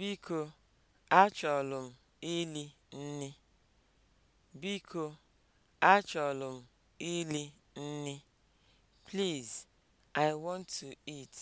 Biko, achọlụ m ili nni. Biko, achọlụ m ili nni. Please, I want to eat.